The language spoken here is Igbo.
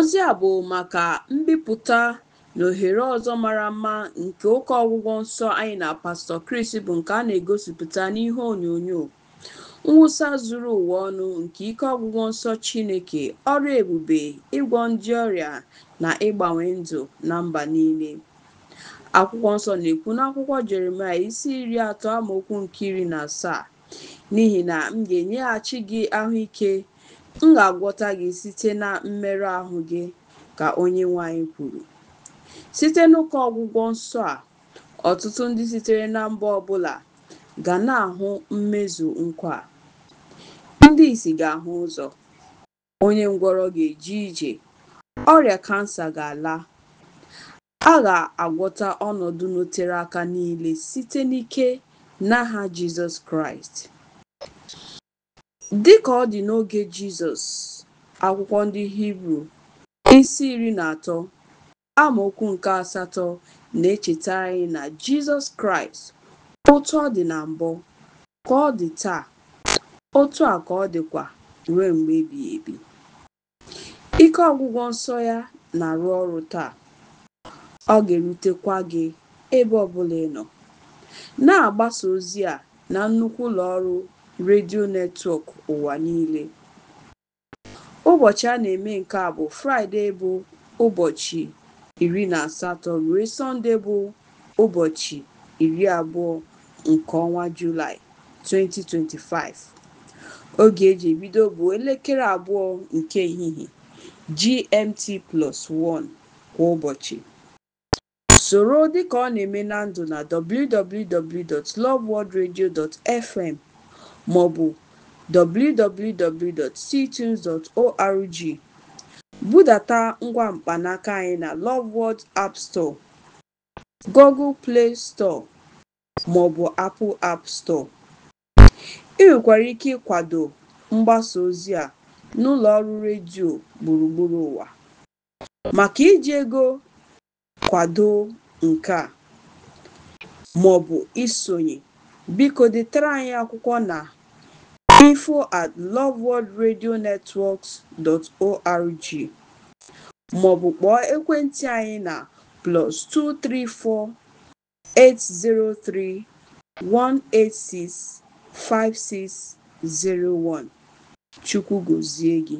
Ozi a bụ maka mbipụta na ohere ọzọ mara mma nke ụka ọgwụgwọ nsọ anyị na Pastọ Chris bụ nke a na-egosipụta n'ihe onyonyo, mwụsa zuru ụwa ọnụ nke ike ọgwụgwọ nsọ Chineke, ọrụ ebube, ịgwọ ndị ọrịa na ịgbanwe ndụ na mba niile. Akwụkwọ nsọ na-ekwu n'akwụkwọ Jeremaya isi iri atọ amaokwu nke iri na asaa n'ihi na m ga-enyeghachi gị ahụike M ga-agwọta gị site na mmerụ ahụ gị, ka onye nwanyị kwuru. Site n'ụka ọgwụgwọ nsọ a, ọtụtụ ndị sitere na mba ọbụla ga na-ahụ mmezu nkwa Ndị isi ga-ahụ ụzọ, onye ngwọrọ ga-eje ije, ọrịa kansa ga-ala. A ga-agwọta ọnọdụ notere aka niile site n'ike n'aha Jizọs Kraịst. Dị ka ọ dị n'oge Jizọs (Akwụkwọ ndị Hibru isi iri na atọ amaokwu nke asatọ na echeta anyị na Jizọs Kraịst, otu ọ dị na mbụ, ka ọ dị taa, otu a ka ọ dịkwa ruo mgbe ebighị ebi. Ike ọgwụgwọ nsọ ya na-arụ ọrụ taa, ọ ga-erutekwa gị ebe ọ ị nọ. Na-agbasa ozi a na nnukwu ụlọ ọrụ redio netwọk ụwa niile. Ụbọchị a na-eme nke a bụ Fraịde bụ ụbọchị iri na asatọ ruo Sọnde bụ ụbọchị iri abụọ nke ọnwa Julaị 2025. Oge eji ebido bụ elekere abụọ nke ehihie GMT plus 1 kwa ụbọchị. Soro dịka ọ na-eme na ndụ na www.loveworldradio.fm maọbụ www.ctunes.org. Budata ngwa mkpanaka anyị na Loveworld App Store, Google Play Store maọbụ Apple App Store. Ị nwekwara ike ịkwado mgbasa ozi a n'ụlọ ọrụ redio gburugburu ụwa. Maka iji ego kwado nke a maọbụ isonye, biko detara anyị akwụkwọ na info at loveworldradionetworks.org maọbụ kpọọ ekwentị anyị na plus 234-803-186-5601. Chukwu gọzie gị.